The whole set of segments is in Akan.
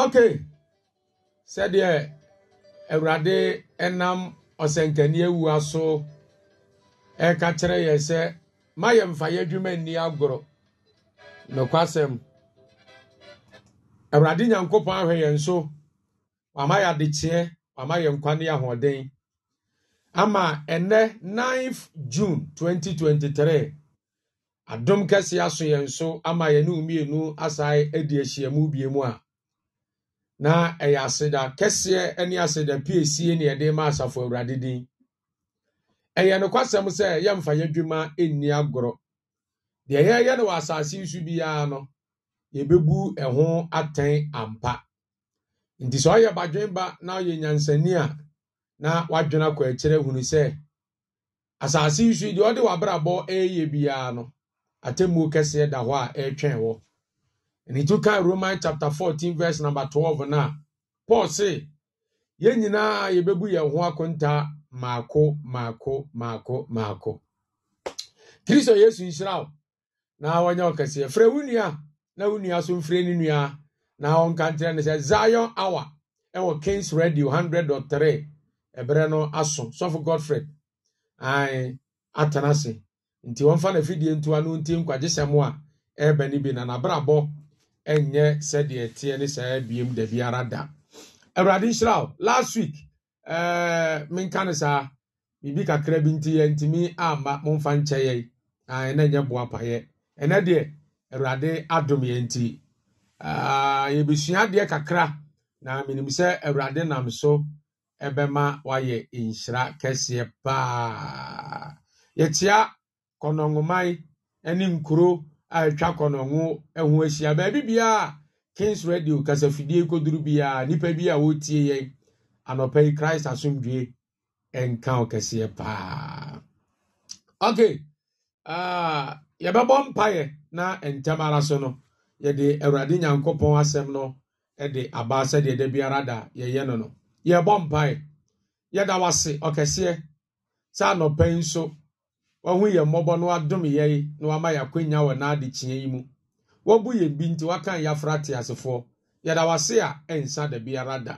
ok sɛdeɛ awurade nam ɔsɛnkani awua so ɛka kyerɛ yɛ sɛ ma yɛ yɛ adwuma nni agorɔ nokwasɛm awurade nyankopɔn ahwɛ yɛn so wama yɛ adekyeɛ wama yɛ nkwa ne ahoɔden ama ɛnɛ 9 th june 2023 adom kɛseɛ aso yɛn so ama yɛne mmienu asae adi ahyiamu biemu a na ɛyɛ aseda kɛseɛ ne aseda piesie ne yɛde ma asafo awurade din ɛyɛ nokwasɛm sɛ yɛmfa yɛdwuma nni agorɔ deɛ yɛyɛ no wɔ asase nso biara no yɛbɛbu ɛho atɛn ampa nti sɛ ɔyɛ badwenba na ɔyɛ nyansani a na wadwene akɔ akyerɛ hunu sɛ asase nso deɛ ɔde wabrabɔ ɛyɛ biara no atemmuo kɛseɛ da hɔ a ɛretwɛn wɔ And he took out Romans chapter 14, verse number 12 now. Paul say, yɛn nyinaa yɛbɛbu yɛn ho akonta mako mako mako maako. Kristo Yesu nhyira wo na wɔnyɛ ɔkɛseɛ. Frɛ wo nua na wo nua so mfrɛ ne nua na ɔnka nkyerɛ ne sɛ Zion hour ɛwɔ Kings Radio 100.3 ɛberɛ no aso. Sɔfo Godfred ae atena ase nti wɔmfa n'afidie ntoa no nti nkwagyesɛm a ɛrebɛ ebe n'ibi na n'abrabɔ ɛnyɛ sɛdeɛ teɛ ne saa abiem da biara da awurade nhyira wo last week ɛɛ menka ne saa biribi kakra bi nti yɛntumi amma momfa nkyɛ yɛn a ɛna nyɛ boa payɛ ɛnɛ deɛ awurade adom yɛn nti yɛbɛsua adeɛ kakra na menim sɛ awurade nam so ɛbɛma wayɛ nhyira kɛseɛ paa yɛkyia kɔnɔngoman ne nkuro a atwa kɔnɔho ho ahyia baabi bia kings radio kasafidie koduru biara nnipa bi a wɔtie yɛn anɔpa yi christ asomdwe nka ɔkɛseɛ paa okay uh, yɛbɛbɔ mpaeɛ na ntɛm ara so no yɛde awurade nyankopɔn asɛm no de aba sɛdeɛ da biara da yɛyɛ no no yɛbɔ mpaeɛ yɛda wase ɔkɛseɛ sɛ anɔpa yi nso wahu yɛ mmɔbɔ no adom yɛn na wama yɛakwanya wɔ n'adekyeɛ yi mu wɔbu yɛ bi nti wakan yɛafra te asefoɔ yɛda wase a ɛnsa da biara da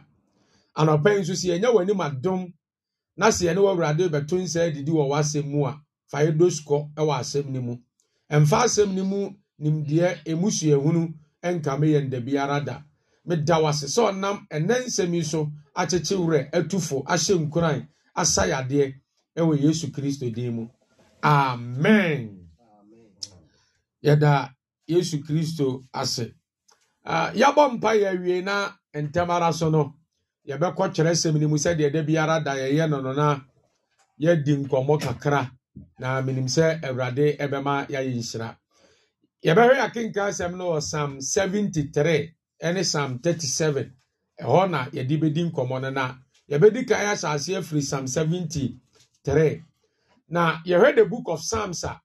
anɔpa yi nso sɛ yɛnyɛ w'anim adom na sɛ yɛne w'awurade bɛto nsa adidi wɔ w'asɛm mu a fa yɛdɔ sukɔ wɔ asɛm no mu ɛmfa asɛm no mu nimdeɛ emusuahunu nkame yɛn da biara da meda wase sɛ ɔnam ɛnɛ nsɛm yi so akyekye atufo ahyɛ nkuran asayadeɛ ɛwɔ yesu kristo din mu amen yɛda yesu kristo ase ah, yɛbɔ mpa yɛawie na ntɛm ara so no yɛbɛkɔ kyerɛ sɛm no mu sɛdeɛ da biara da yɛyɛ no no na yɛadi nkɔmmɔ kakra na menim sɛ awurade ɛbɛma yɛayɛ nhyira yɛbɛhwɛ yɛakenka asɛm no wɔ psalm 73 ne psalm 37 ɛhɔ na yɛde bɛdi nkɔmmɔ no na yɛbɛdi kan asase afiri psalm 73 na heard the book of psalms a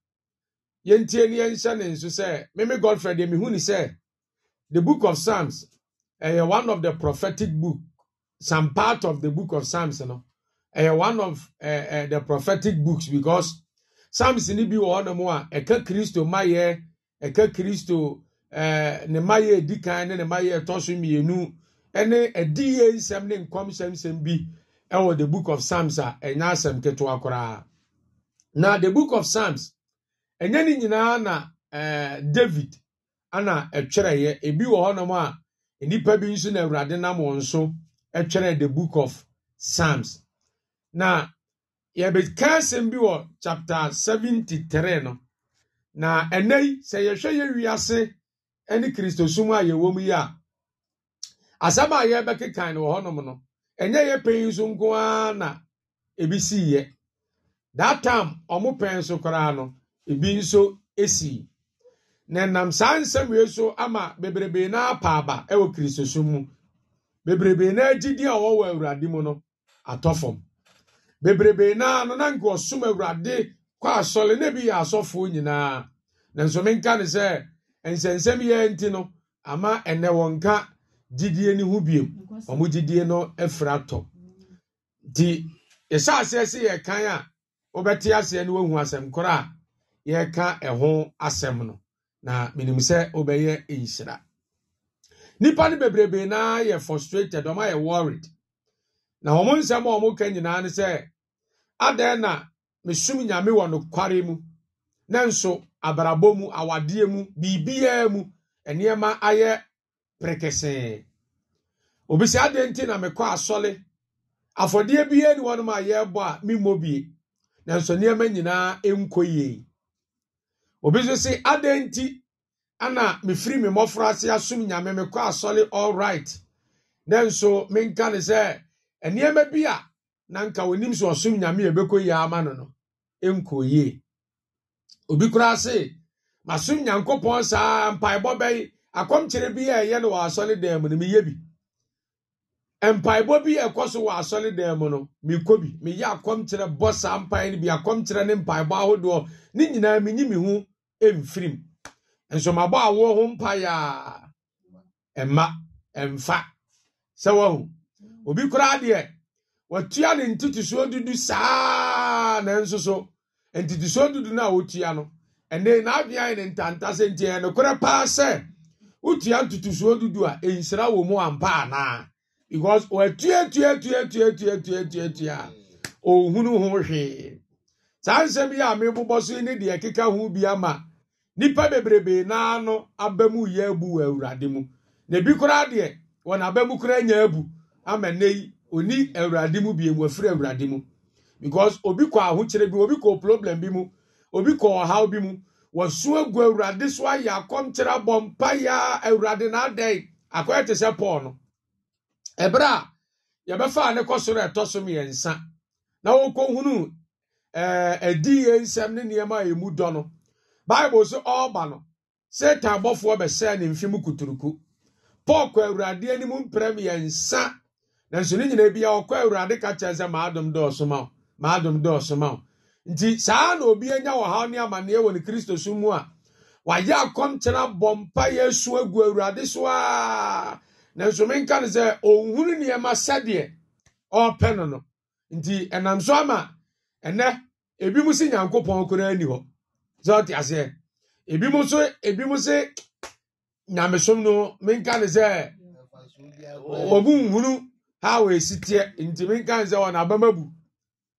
yɛntie ne yɛnhyɛ ne nso sɛ meme godfrey deɛ mehu ne sɛ the book of psalms ɛyɛ one of the prophetic book some part of the book of psalms no ɛyɛ one of uh, uh, the prophetic books because psalms ne bi wɔ hɔnom a ɛka kristo mayɛ ɛka kristo ne mayɛ edi kan ne ne mayɛ ɛtɔ so mmienu ɛne ɛdi yie nsɛm ne nkɔmhyɛnsɛm bi ɛwɔ the book of psalms a ɛnyɛ asɛm ketewa koraa na the book of psalms ɛnyɛ ne nyinaa na ɛɛ eh, david ana ɛtwerɛeɛ ebi wɔ hɔnom a nnipa bi nso na awurade nam wɔn so ɛtwerɛ the book of psalms na yɛbɛka asɛm bi wɔ chapter seventy three no na ɛnɛ yi sɛ yɛhwɛ yɛ wiase ɛne kristosum a yɛwɔ mu yi a asɛm a yɛbɛkekan no wɔ hɔnom no ɛnyɛ yɛ pɛyi nso nko ara na ebi si yɛ that time ọmụpere pɛn so koraa ebi nso esi na nam saa nsɛm yɛ so ama bebrebe na apa aba ɛwɔ kirisoso mu bebrebe na eji a ọwụwa wɔ awurade mu no atọ fam bebrebe na anọ na nka ɔsom awurade kɔ asɔre na ebi yɛ asɔfoɔ nyinaa na nso menka ne sɛ nsɛnsɛm yɛ nti no ama ɛnɛ wɔn ka gyidie ne biem ɔmo gyidie no afira atọ di yɛhyɛ aseɛ sɛ yɛ kan a. wobɛte aseɛ no woahu asɛm korɔ a yɛreka ɛho asɛm no na menim sɛ wobɛyɛ nhyira nnipa no bebrebee na yɛ frustrated ɔma yɛ worried na wɔn nsɛm a wɔn nyinaa ne sɛ adan na mesum nyame wɔ nokware mu na nso abrabɔ mu awadeɛ mu biribiara mu nneɛma ayɛ perekesee obi sɛ adan nti na mekɔ asɔle afɔdeɛ biara ni wɔn a yɛrebɔ a memmɔ bie nanso nneɛma nyinaa nkɔ yie obi nso si adan nti ana mefiri me mmɔfra ase asom nyame mekɔ asɔre all right nanso menka ne sɛ nneɛma bi a na nka onim sɛ ɔsom nyame a ɛbɛkɔ yie ama no no nkɔ yie obi koraa se masom nyankopɔn saa mpaebɔ bɛyi akɔmkyerɛ bi a ɛyɛ no wɔ asɔre dan mu no meyɛ bi mpaebɔ bi ɛkɔ so wɔ asɔredan mu no mekɔ bi meyɛ akɔmkyerɛ bɔ saa mpae no bi akɔmkyerɛ ne mpaebɔ ahodoɔ ne nyinaa menyi me ho mfirim nso mabɔ awoɔ ho mpaeɛ a ɛma ɛmfa sɛ wahu obi koraa deɛ watua ne ntotosoɔ dudu saa nanso so ntotosoɔ dudu no a wɔtua no ɛnɛ n'adwea yɛ ne ntanta sɛ nti ɛnokorɛ paa sɛ wotua ntotosoɔ dudu a ɛnsira wɔ mu ampa anaa because wɔatuatuatuatuatuatuatua ɔhunu ho hwee saa nsɛm yi a mebobɔ so ne deɛ ɛkeka ho bi ama nnipa bebrebee naa no yɛ wɔ awurade mu na e bi koraa deɛ wɔn aba mu koraa nya abu ama nne yi oni awurade e mu bie wɔafiri awurade e mu because obi kɔ bi obi kɔ problem ebere a yɛbɛfaa ne kɔ soro no ɛtɔ so mmiɛnsa na wɔkɔhunu ɛdi yɛ nsɛm ne nneɛma a ɛmu dɔ no bible so ɔreba no satan bɔfoɔ bɛsɛɛ ne mfe mu kuturuku paul kɔ awurade anim mprɛ mmiɛnsa nanso ne nyinaa bia ɔkɔ awurade ka kyerɛ sɛ maadom dɔɔso ma wo maadom dɔɔso ma wo nti saa na obi anya wɔhaw ne amanneɛ wɔ ne kristo so mu a wayɛ akɔmkyena bɔ mpa yɛ asu agu awurade so a nanso menka no sɛ ɔnhunu nneɛma sɛdeɛ ɔrepɛ no no nti ɛnam so ama ɛnɛ ebi mu si nyankopɔn koraa ni hɔ sɛ ɔte aseɛ ebi mu nso ebi mu si nyamesom no menka no sɛ ɔmu nhunu ha wɔ esi teɛ nti menka no sɛ ɔna abama bu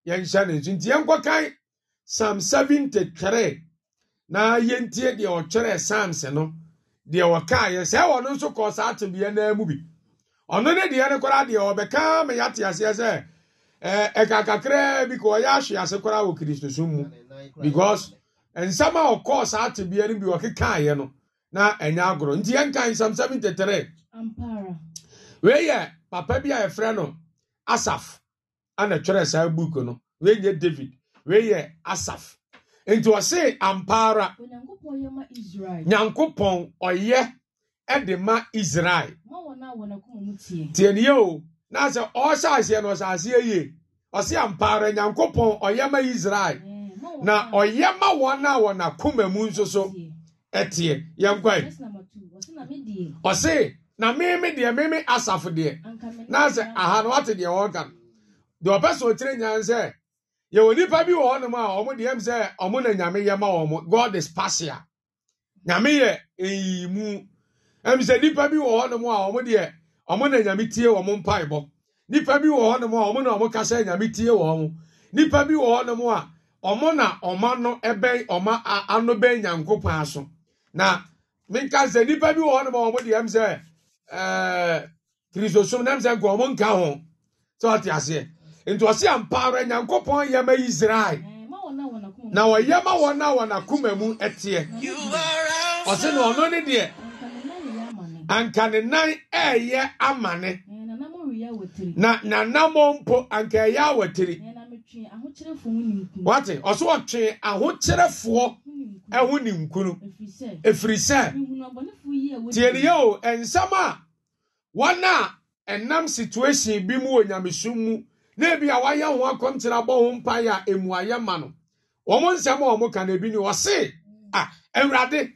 yɛnhyɛ ne nso nti yɛnkɔkan psalm seventy three na yɛntie deɛ ɔtwerɛ psalms no. deɛ wɔkaeɛ sɛ wɔno nso kɔ saa tedeɛ naa mu bi ɔno ne deɛ no koraa deɛ ɔbɛka ma yɛate aseɛ sɛ ɛɛ ɛka kakraa bi ka ɔyɛ ahwe ase kora wɔ kristosom mu because nsɛm a ɔkɔ saa tedeɛ no bi ɔkekaeɛ no na ɛnyɛ agorɔ nti yɛnka nsɛm sɛm ntetere wei yɛ papa bi a yɛfrɛ no asaf ana twerɛ saa book no wei nyɛ david wei yɛ asaf nti ɔse ampa ara nyankopɔn ɔyɛ de ma israel tiɛniɛ o na sɛ ɔhyɛ aseɛ no ɔhyɛ yie ɔse ampaara ara nyankopɔn ɔyɛ ma israel na ɔyɛ ma wɔn a wɔ n'akoma mu nso so ɛteɛ yɛnkwae ɔse na meme deɛ meme asafo deɛ na sɛ aha no wate deɛ wɔka no deɛ ɔpɛ sɛ ɔkyerɛ nyan sɛ yɛwɔ nipa bi wɔ hɔnom a ɔmo deɛ sɛ ɔmo na nyame yɛ ma ɔmo god is pasia nyame yɛ eyimu ɛm sɛ nipa bi wɔ hɔnom a ɔmo deɛ ɔmo na nyame tie wɔn mpaebɔ nipa bi wɔ hɔnom a ɔmo na ɔmo kasa nyame tie wɔn nipa bi wɔ hɔnom a ɔmo na ɛbɛn ano bɛn nyanko paa so na sɛ nipa bi wɔ hɔnom a ɔmo deɛ sɛ ɛɛ nti ɔsi ampa ara nyankopɔn yɛ ma israel na eh, ɔyɛ ma wɔn a wɔn akoma mu teɛ ɔsi na ɔno ne deɛ anka ne nan ɛɛyɛ amane eh, na nanamɔ mpo anka ɛyɛ awɔtiri eh, wate ɔso ɔtwe ahokyerɛfoɔ ɛho ne efiri ɛfiri sɛ tie ne yɛ o nsɛm a wɔn a ɛnam situation bi mu wɔ nyamesum mu. na ebi a wayɛ ho akɔmkyerɛ abɔ ho mpaeɛ a mmuayɛ ma no wɔn nsɛm a wɔn ka na ebi ni wɔse a awurade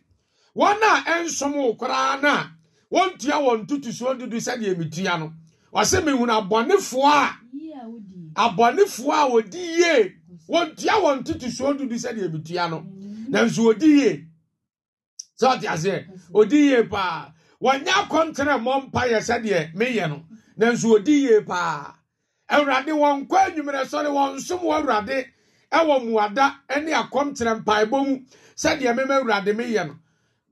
wɔn a ɛnsom wo koraa no a wɔntua wɔn tutusuo dudu sɛdeɛ metua no wɔse mehunu abɔnefoɔ a abɔnefoɔ a wɔdi yie wɔntua wɔn tutusuo dudu sɛdeɛ metua no nanso wɔdi yie sɛ ɔte aseɛ wɔdi yie paa wɔnyɛ akɔntere mmɔ mpaeɛ sɛdeɛ meyɛ no nanso wɔdi yie paa awurade wɔn nkɔ anwummerɛ sɔre wɔn nsom wɔ awurade ɛwɔ mmuada ne akɔmkyerɛ mpaebɔ mu sɛdeɛ mema awurade meyɛ no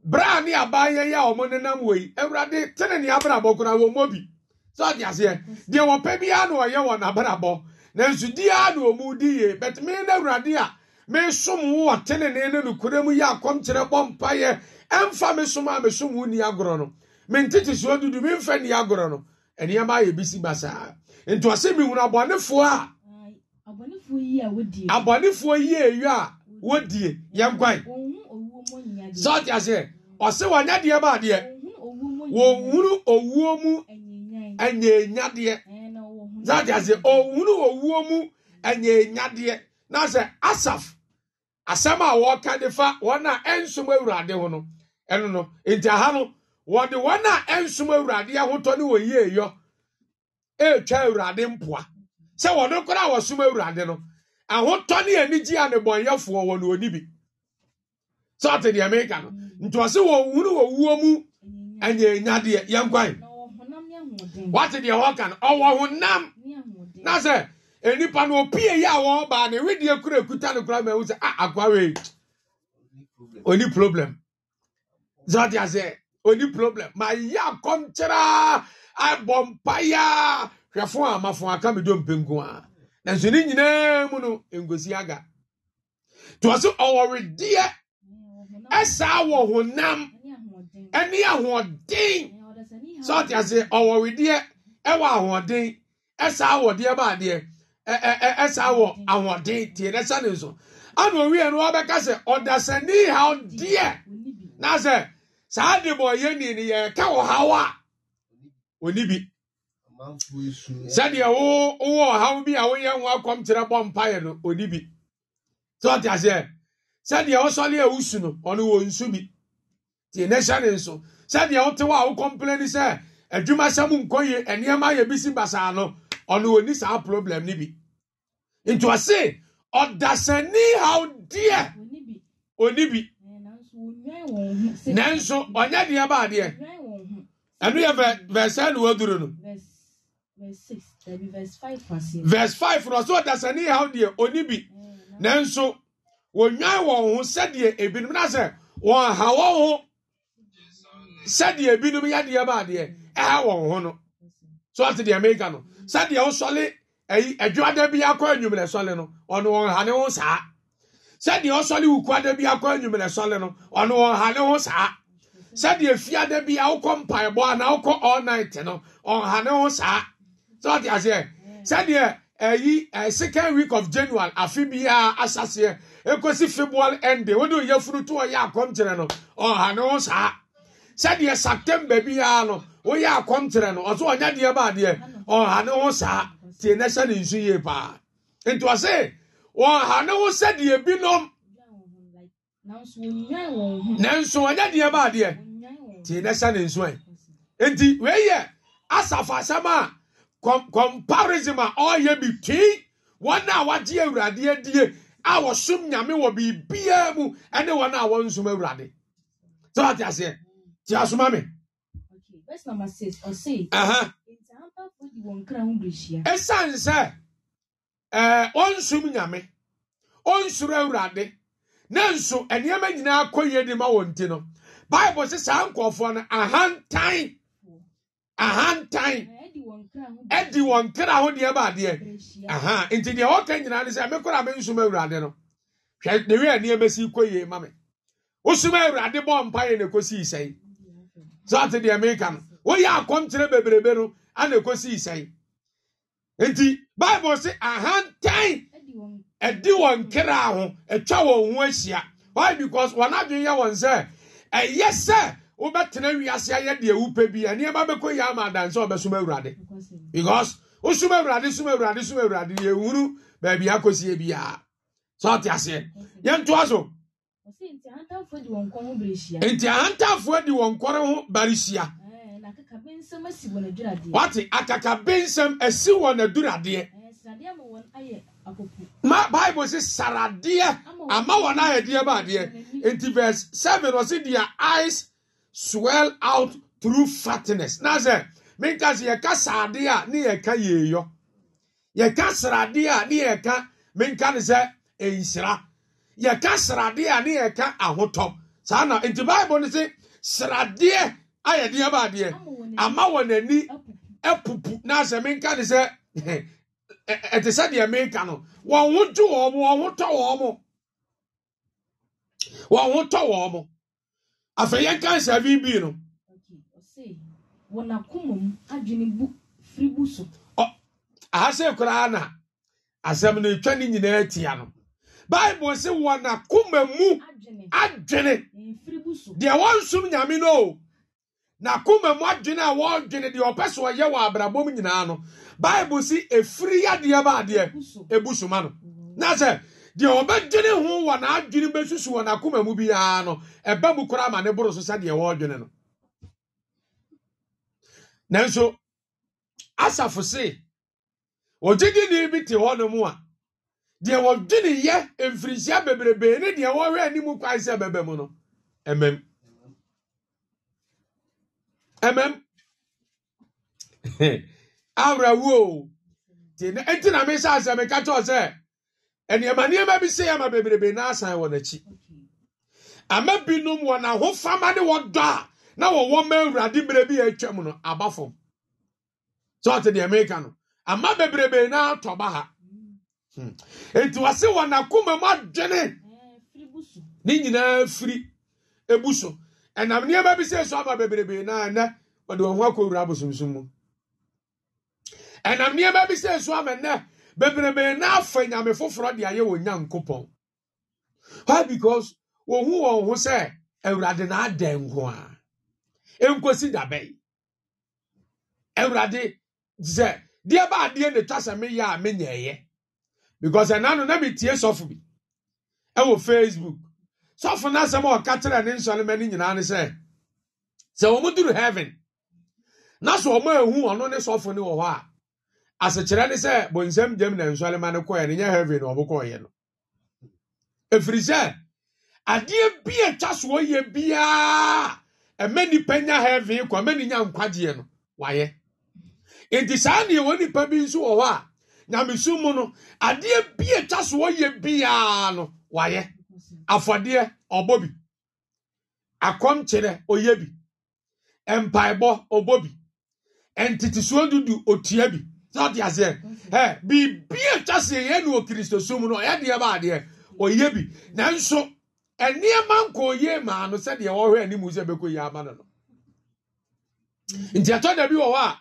braa ne abaayɛ nenam wɔ yi tene ne abrabɔ bi sɛ aseɛ deɛ wɔpɛ na ɔyɛ wɔn abrabɔ a na wɔn di yie bɛt me ne awurade a wo mu yɛ bɔ mpaeɛ som a wo ni agorɔ no nti ɔsɛ mihunu abɔnefoɔ a abɔnefoɔ yi ewi a wodie yɛn kwan sɔɔte aseɛ ɔsɛ wɔnyɛ deɛ ba adeɛ wɔnhunu owuo mu ɛnyɛnyadeɛ sɔɔte aseɛ ɔnhunu owuo mu ɛnyɛnyadeɛ na sɛ asaf asɛm a wɔka de fa wɔn a ɛnsom awurade ho no ɛno no nti aha no wɔde wɔn a ɛnsom awurade ahotɔ ne wɔn yie ɛretwa awurade mpoa sɛ wɔde koraa a wɔsom awurade no ahotɔ ne anigye a nnebɔnyɛfoɔ wɔ na ɔni bi sɛ ɔte deɛ meka no nti ɔse wɔhunu wɔwuo mu ɛnyɛ nyadeɛ yɛnkwan wate deɛ wɔka no ɔwɔ honam na sɛ nipa no opie yi a wɔbaa ne wedeɛ kura ekuta no kura ma ehu a ah, akwawee oni problem zɔte ase oni problem ma yi akɔm abɔ mpaya hwɛfo a amafo aka medɔ mpenko a nanso ne nyinaa mu no nkosi aga to ɔsɛ ɔwɔredeɛ ɛsaa wɔ honam ɛne ahoɔden sɛ ɔte ase ɔwɔredeɛ ɛwɔ ahoɔden ɛsaa wɔ deɛ baadeɛ ɛsaa wɔ ahoɔden tie na sa ne nso ana owie no wɔbɛka sɛ ɔdasani haw deɛ na sɛ saa de bɔ yɛ ni ne yɛka wɔ ha. a ɔni bi sɛdeɛ wowɔ ɔhaw bi a woyɛ ho akɔmkyerɛ bɔ mpaeɛ no ɔni bi sɛ ɔte aseɛ sɛdeɛ wosɔre a wosu no ɔno wɔ nsu bi nti ne hyɛ ne nso sɛdeɛ wote hɔ a wokɔmplɛ ni sɛ adwumasɛm nkɔ yie nneɛma yɛ bi si basaa no ɔno wɔni saa problem no bi nti ɔse ɔdasani haw deɛ Onibi. bi nanso ɔnyɛ deɛ baadeɛ ɛno yɛ verse ɛna wɔduru no. verse five no ɔsɛ ɔdasani haw deɛ oni bi nanso wɔnwan wɔn ho sɛdeɛ ebinom na sɛ wɔn ha wɔn ho sɛdeɛ ebinom yadeɛ baadeɛ ɛha wɔn ho no so ɔte deɛ meka no sɛdeɛ ɔsɔle ɛyi adwada bi akɔ enyimlɛ sɔle no ɔno wɔn ha ne ho saa sɛdeɛ ɔsɔle wukuada bi akɔ enyimlɛ sɔle no ɔno wɔn ha ne ho saa sɛdeɛ fiada bi awokɔ mpaebɔ anaa awokɔ all night no ɔnhane ho saa sɛ ɔte aseɛ sɛdeɛ ɛyi ɛ second week of january afe biara asaseɛ ekosi february ɛnde wɔde oyɛ funu to ɔyɛ akɔmkyerɛ no ɔnhane ho saa sɛdeɛ september biara no woyɛ akɔmkyerɛ no ɔso ɔnya deɛ baadeɛ ɔnhane ho saa tie na ɛhyɛ ne nsu yie paa nti ɔse ɔnhane ho sɛdeɛ binom nanso ɔnyɛ deɛ ba adeɛ tie na ɛhyɛ ne nso ɛ nti wei yɛ asafo asɛm a comparison a ɔreyɛ between wɔn a wɔagye awurade adie a wɔsom nyame wɔ biribiara mu ne wɔn a wɔnsom awurade sɛ wate aseɛ tie asoma me ɛsiane sɛ wɔnsom nyame ɔnsoro awurade nanso nneɛma nyinaa kɔ yie de ma wɔn ti no bible sɛ saa nkurɔfoɔ no ahantan ahantan ɛdi wɔn kra ho deɛ baadeɛ aha nti deɛ wɔka nyinaa ne sɛ me kora me nsom awurade no hwɛ ne wia nneɛma si kɔ yie ma me wosom awurade bɔ mpaeɛ na ɛkɔsi sɛe saa te deɛ meka no woyɛ akɔmkyerɛ bebrebe no ana ɛkɔsi sɛe nti bible sɛ ahantan ɛdi wɔn nkira ho atwa wɔn ho ahyia why because wɔn adwene yɛ wɔn sɛ ɛyɛ sɛ wobɛtena wiase ayɛ deɛ wupɛ bi nneɛma bɛkɔ yie ama adansɛ ɔbɛsom awurade because wosom awurade som awurade som awurade deɛ ehuru baabi akɔsie biara sɛ ɔte aseɛ yɛn to aso. nti ahantanfoɔ di wɔn kɔre ho barihyia. wate akakabe nsɛm asi wɔn aduradeɛ ma bible sɛ saradeɛ ama wɔn a yɛdeɛ ba adeɛ nti verse seven ɔsi their eyes swell out through fatness na sɛ minka sɛ yɛka saradeɛ a ne yɛka yɛyɔ yɛka saradeɛ a ne yɛka minka ne sɛ nhyira yɛka sradeɛ a ne yɛka ahotɔ saa na nti bible no se sradeɛ ayɛ deɛ ba adeɛ ama wɔn ani apupu na asɛ menka ne sɛ ɛte sɛ deɛ menka no wɔn ho gye wɔn mo wɔn ho tɔ wɔn mo wɔn ho tɔ wɔn mo afei yɛn ka nsa bi bi no. wɔn akoma mu adwene bu firi bu so. na asɛm no etwa ne nyinaa tia no baibul sɛ wɔn akoma mu adwene deɛ wɔn nsum nyame no o. na akoma mu adwene a wɔdwene deɛ ɔpɛ so ɔyɛ wɔ abrabɔ mu nyinaa no bible si efiri yadeɛ baadeɛ ebu suma no na sɛ deɛ ɔbɛdwene ho wɔ n'adwene bɛsusu wɔ n'akoma mu biara no ɛbɛ mu koraa ma ne boro so sɛdeɛ wɔdwene no nanso asafo se ogyegyeni bi te hɔ no a deɛ wɔdwene yɛ mfirinhyia bebrebe ne deɛ wɔhwɛ anim kwan sɛ bɛbɛ mu no ɛmɛm. ɛmɛm awerɛwuo nti na na mi hyɛ asɛm ɛka kyɛw sɛ nneɛma nneɛma bi se ama bebrebe na asan wɔ n'akyi ama binom wɔ fama de wɔdɔ a na wɔwɔ mma awurade bere bi a atwam no aba fam sɛ ɔte deɛ meka no ama bebrebe na atɔ ba ha hmm. nti wɔse wɔ n'akoma mu adwene ne nyinaa firi ebu so ɛnam nneɛma bi sɛ so aba bebrebe na ɛnɛ wɔde wɔn ho akɔwura abosomsom mu ɛnam nneɛma bi sɛ so ama ɛnɛ bebrebe na afa nyame foforɔ de ayɛ wɔn nyankopɔn why because wɔn ho wɔn ho sɛ awurade na ada nko a nkosi dabɛn awurade sɛ deɛ ba adeɛ na etwa sɛ meyɛ a menyɛɛyɛ because ɛnano na metie sɔfo bi ɛwɔ facebook sɔfo na asɛm a ɔka kyerɛ ne nsɔlema no nyinaa ne sɛ sɛ duru heaven na sɛ wɔn ehu ɔno ne sɔfo no wɔ hɔ a asekyerɛ ne sɛ bonsam na nsɔlema no kɔɛ ne nyɛ heaven na ɔmo kɔɔyɛ no efiri sɛ adeɛ bi atwa so ɔyɛ biara ɛmɛ nya heaven kɔ ɛmɛ ne nya nkwagyeɛ no wayɛ nti saa nea wɔn bi nso wɔ hɔ a nyamesu mu no adeɛ bi atwa afɔdeɛ ɔbɔ bi akɔmkyerɛ ɔyɛ bi mpaebɔ ɔbɔ bi ntetesoɔ dudu otua bi sɛ ɔte aseɛ ɛ biribi atwa seɛ yɛn ne okristo sum no ɔyɛ deɛ ba adeɛ ɔyɛ bi nanso nneɛma nkɔ ɔyɛ maa no sɛdeɛ wɔhwɛ anim sɛ bɛkɔ yie ama no no mm. nti ɛtɔ da bi wɔ hɔ a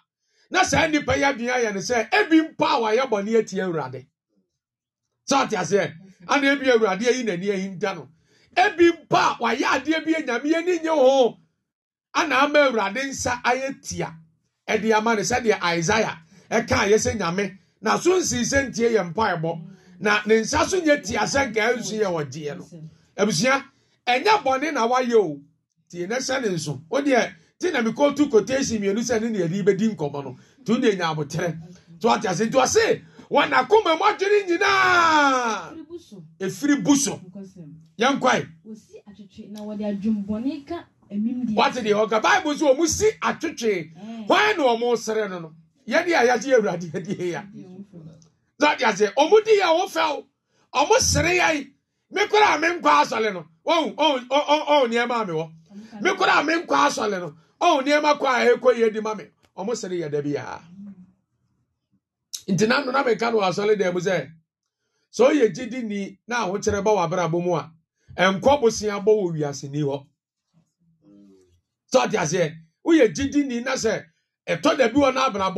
na saa nnipa yi adwene ayɛ no sɛ ebi mpo a wɔayɛ bɔne atia awurade sɛ ɔte aseɛ ana ebi awurade ayi n'ani ayi nda no ebi mpa a wayɛ adeɛ bi anyame ani nye ho ana ama awurade nsa ayɛ tia ɛde ama no sɛdeɛ isaia ɛka ayɛ sɛ nyame na so nsinsɛ ntie yɛ mpaebɔ na ne nsa so nyɛ tia sɛ nka nsu yɛ wɔgyeɛ no abusua ɛnyɛ bɔne na wayɛ o tie ne hyɛ ne nso o deɛ ti na mi kɔ kotation mmienu sɛ ne ne yɛde bɛdi nkɔmɔ no tu de nya abotere to ate ase to ase. wɔn akoma mu adwene nyinaa efiri bu so e, yɛn kwae. wosi atwitwe na wɔde adwumbɔne ka emim deɛ. wate deɛ ɔka baibu so wɔn si atwitwe eh. wɔn na wɔn sere no no yɛn deɛ yɛagye awurade yɛdeɛ ya na de aseɛ wɔn di yɛ wɔn fɛw wɔn sere yɛ mi kora a mi nkɔ asɔle no ɔn ɔn ɔn nneɛma mi wɔ mi kora a mi nkɔ asɔle no ɔn nneɛma kɔ a ɛkɔ e, yɛ di ma mi wɔn sere yɛ dɛbi yaa. nti na nnona meka no asɔre dan mu so sɛ ɔyɛ gyidi ni na ahokyerɛ bɔ w'abrabɔ a nkɔ bosea bɔ wɔ wiase ni hɔ sɛ ni na na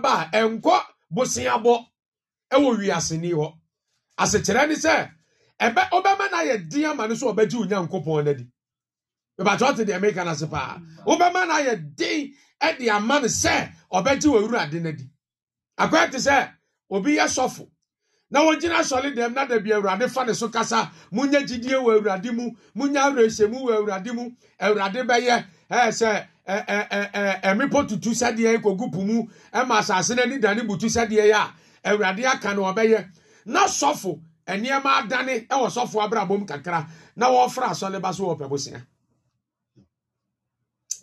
ba a wiase ama so ɔbɛgye onyankopɔn no adi bɛbàtɛ ɔte dị meka no ase paa ọ no ayɛ den de ama no sɛ ɔbɛgye akɔyɛ te sɛ obi yɛ sɔfo na wɔgyina asɔre dɛm na dabi awurade fa ne so kasa munya gyidie wɔ awurade mu munya awerɛhyɛmu wɔ awurade mu awurade bɛyɛ ɛɛ sɛ tutu sɛdeɛ ɛkɔgu mu ɛma asase no ani butu sɛdeɛ yɛ a awurade aka no ɔbɛyɛ na sɔfo nneɛma adane ɛwɔ sɔfo abrabom kakra na wɔfra asɔre ba so wɔ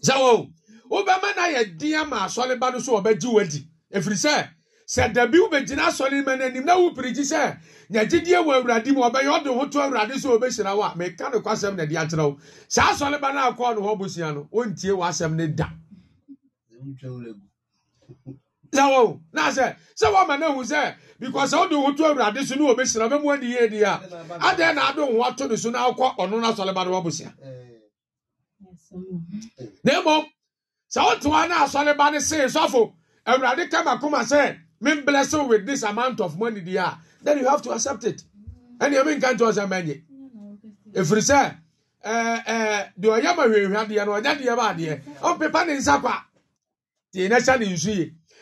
sɛ wobɛma ba no so sɛ dabi wobɛgyina asɔre ma no anim na wopirikyi sɛ nyagyedie wɔ awurade mu ɔbɛyɛ ɔde ho to awurade sɛ wɔbɛhyira wo a meka no kwasɛm na de akyerɛ wo saa asɔre ba no akɔɔ no hɔ bosua no ɔntie w'asɛm no da na na sɛ sɛ woama no ahu sɛ because sɛ wode ho to awurade so ne wɔbɛhyira bɛmu ani a adɛn na ade ho ato no so na wokɔ ɔno no asɔre ba no na mmom sɛ wotoa no asɔre ba no see sɔfo awurade ka sɛ me bless with this amount of money there then you have to accept it And you ɛne ɛmi nka nkyɛn ɔsɛ mɛnyɛ efiri sɛ ɛɛ ɛɛ deɛ ɔyɛ ma hwehwɛ adeɛ no ɔnyɛ deɛ ba adeɛ ɔpepa ne in kwa the nation is nsu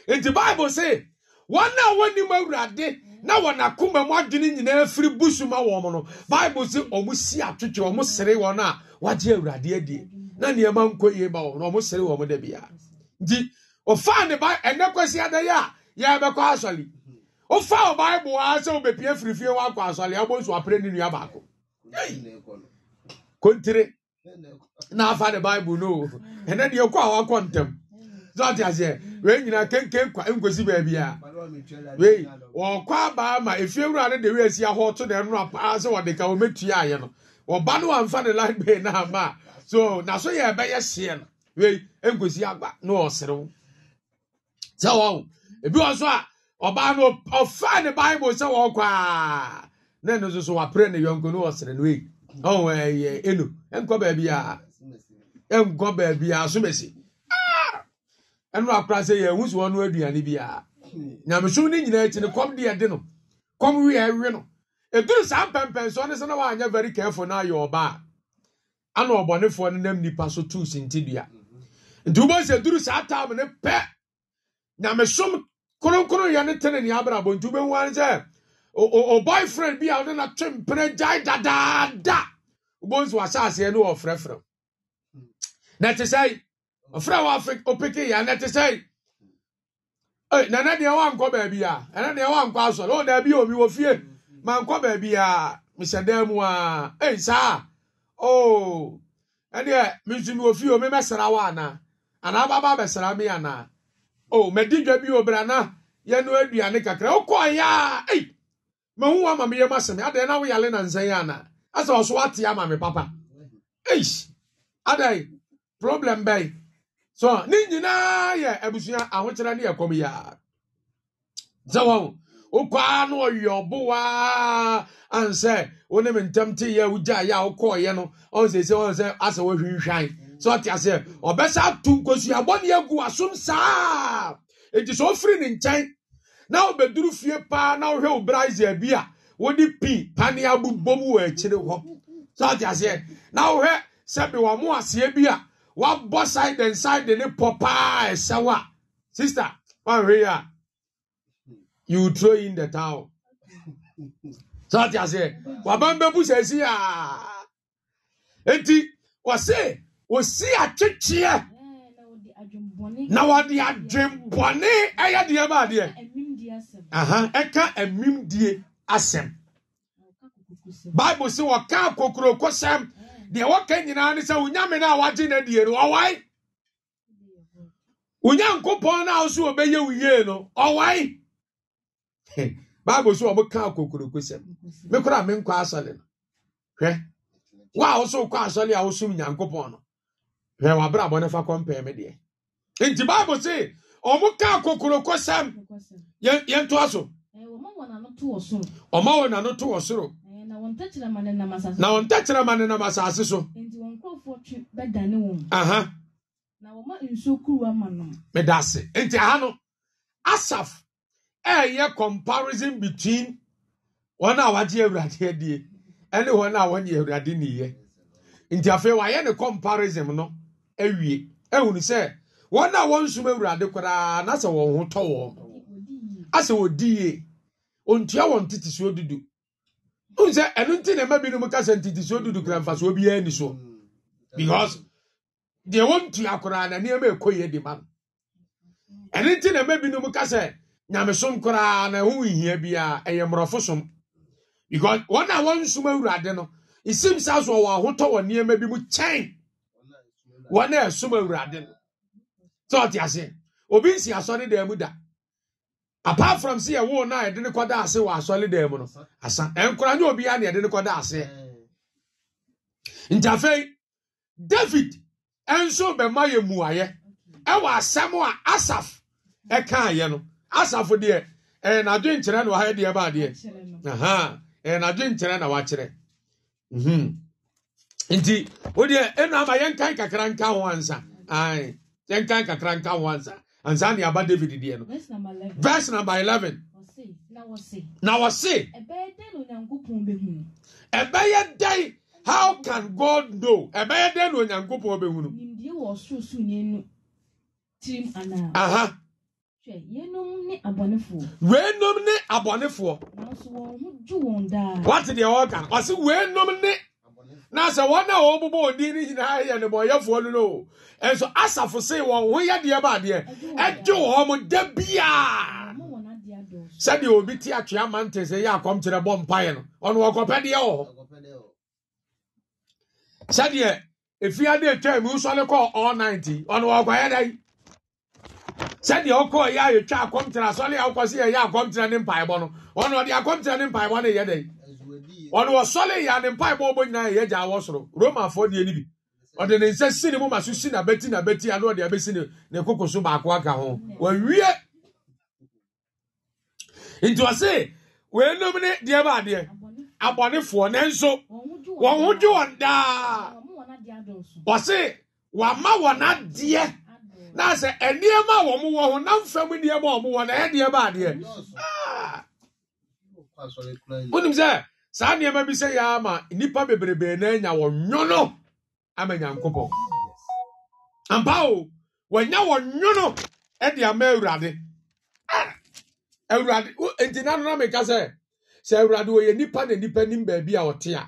yie the bible say wɔn a wɔnim awurade na wɔn akoma mu adwene nyinaa firi busuma wɔn no bible say wɔn si atwitwe wɔn sere wɔn a wɔagye awurade adie na nneɛma nkɔ yie ba wɔn na wɔn sere wɔn dɛ bia nti ɔfaa ne ba ɛnɛ kɔsi adayɛ a. yɛbɛkɔ asɔre wofa wo bible a sɛ wobɛpia firifie woakɔ asɔre abɔ nsu apere ne nua baako kontire na afa ne bible no ɛnɛ deɛ kɔ a wakɔ ntɛm sɛ ɔte aseɛ wei nyinaa kenken nkwa nkosi beebi a wee wɔkɔ abaa ma efie wura ne de wei asi ahɔ to na ɛno apaa sɛ wɔde ka wɔmɛtua ayɛ no ɔba no wamfa ne light bay na ama so na so yɛ ɛbɛyɛ seɛ no wee nkosi agba na ɔserew sɛ wɔwo ebi wɔ so a ɔbaa no ɔfa ne bible sɛ wɔkɔ a na ɛno nso so wapere ne yɔnko no wɔsere no ei ɔwɔ ɛyɛ enu ɛnkɔ baabi a ɛnkɔ baabi a asomesi ah! ɛno akora sɛ yɛn wusu wɔn no aduane bi a nyamesom ne nyinaa akyi no kɔm deɛ de no kɔm wi ɛwi no eduru saa mpɛmpɛnso ɔne sɛ wɔanyɛ very careful na ayɛ ɔbaa ana ɔbɔnefoɔ no nam nipa so tuu sintidua nti wobɔ sɛ duru saa taam ne pɛ nyamesom kronkron yɛ ne tene nea abrabɔ nti wobɛhu ane sɛ o boyfriend bi a wode no twe mpene gyae dadaada wobɛhu sɛ wahyɛ aseɛ ne wɔfrɛfrɛ na te sɛe ɔfrɛ wɔ opeke yɛ na te sɛe nana deɛ wankɔ baabi a ɛna deɛ wankɔ asɔre ɔ daabi omi wɔ fie mankɔ baabi a mehyɛ dan mu a ei saa o ɛneɛ menso mi wɔ fie o memɛsra wo anaa anaa baba bɛsra me anaa o madi dwa bi obra na yɛno aduane kakra wokɔɔ yɛ a ei mahu wa ma meyɛ masɛm adɛn na woyale na nsɛn ana asɛ ɔso wate ama me papa ei adɛn problem bɛn so ne nyinaa yɛ abusua ahokyerɛ ne yɛkɔm yɛa sɛ wɔ wokɔa na ɔyɛ ɔbowa ansɛ wo ne me ntɛm teyɛ wogyaeɛ a wokɔɔyɛ no ɔnsɛ sɛ ɔnsɛ asɛ woahwinhwan sɛ ɔte aseɛ ɔbɛsa ato nkosuabɔne agu asom saa enti sɛ ɔfiri ne nkyɛn na wobɛduru fie paa na wohwɛ wo braise bi a wode pii pane abobɔ mu wɔ akyire hɔ sɛ ɔte aseɛ na wohwɛ sɛbe wɔ mo aseɛ bi a wabɔ side and side ne pɔ paa ɛsɛw a sister woanhwɛ yi a you throw in the towel sɛ ɔte aseɛ waban bɛbu sɛ asi a enti wɔse osi akyekyeɛ eh, na wɔde adwembɔne ɛyɛ deɛ ba adeɛ ɛka amimdie asɛm bible sɛ wɔka eh. deɛ wɔka nyinaa ne sɛ wonyame no a wagye no adie no ɔwae onyankopɔn no a wo so wɔbɛyɛ wo yie no ɔwae bible so wɔmoka kokurokosɛm me koraa menkɔ asɔle no hwɛ wo a wo so wokɔ asɔle a wosom nyankopɔn no hwɛ wabrabɔ no fa kɔmpɛɛ me deɛ nti bible se ɔmo kaa kokoroko sɛm yɛntoa so ɔma wɔ nano to wɔ soro na wɔn tɛkyerɛma ne nam asase so aha meda ase nti aha no asaf ɛyɛ comparison between wɔn a wagye awurade adie ɛne wɔn a wɔnyɛ awurade niyɛ nti afei wayɛ ne comparison no awie ehunu sɛ wɔn a wɔn nsum awurade koraa na wɔn ho tɔ wɔn asɛ wɔdi yie ontua wɔn tete dudu n sɛ ɛnu ti na ɛma binom kasa tete dudu kura nfasuo bi ni so because deɛ wɔn koraa na nneɛma de ma no ɛnu ti na ɛma na ɛho nhia ɛyɛ mmorɔfo som because wɔn a wɔn nsum awurade no esim saa so wɔn ahotɔ nneɛma bi mu wɔn a ɛsom awurade no ọ ɔte ase obi nsi asɔre dan mu da apart from si ɛwo na yɛde ne kɔda ase wɔ asɔre dan mu no asa nye obi ya na yɛde ne ase ntafei david nso bɛma yɛ muayɛ ɛwɔ asam a asaf ɛka ayɛ no asaf deɛ ɛyɛ n'adwenkyerɛ na wɔayɛ deɛ ba adeɛ ɛyɛ n'adwenkyerɛ na wakyerɛ. Mhm. nti wodeɛ ɛnu ama yɛnkan kakra nka ho ansa ae yɛnkan kakra nka ho ansa ansa ne aba david deɛ no verse number 11 na wɔse ɛbɛyɛ dɛn how can god know ɛbɛyɛ dɛn na onyankopɔn bɛhunu aha weenom ne abɔnefoɔ wate deɛ wɔka no ɔse ne na sɛ wɔn a wɔn bobɔ odin nyinaa yɛ nnebɔyɛfoɔ no no nso asafo se wɔn ho yɛ deɛ ba adeɛ ɛgye wɔn da sɛdeɛ obi ti atwea mantin sɛ yɛ akɔmkyerɛ bɔ mpaeɛ no ɔno wɔkɔpɛ deɛ wɔ hɔ sɛdeɛ efiade etwa mu nsɔle kɔ all ninety ɔno dɛ sɛdeɛ yɛ a akɔmkyerɛ si yɛ yɛ akɔmkyerɛ ne no ɔno ɔde akɔmkyerɛ ne no yɛ dɛ. ɔne ɔsɔle yɛ ade mpaebɔ ɔbɔ nyinaa yɛ gya awɔ soro romafoɔ deɛ no bi ɔde ne nsa si ne mu ma so si na n'abati ano ɔde abɛsi ne ne koko so baako aka ho wawie nti ɔse ne deɛ ba adeɛ abɔnefoɔ nanso wɔn ho gye wɔn daa ɔse wama wɔn adeɛ na sɛ nneɛma a wɔn na mfam nneɛma a wɔn wɔ na ɛyɛ saa nneɛma bi sɛ yɛa ama nnipa bebrebe na anya wɔn nwono ama nyankopɔn ampa o wɔanya wɔn nwono de ama awurade ah! awurade nti na nona meka sɛ sɛ awurade wɔyɛ nipa na nnipa nim baabi a ɔte a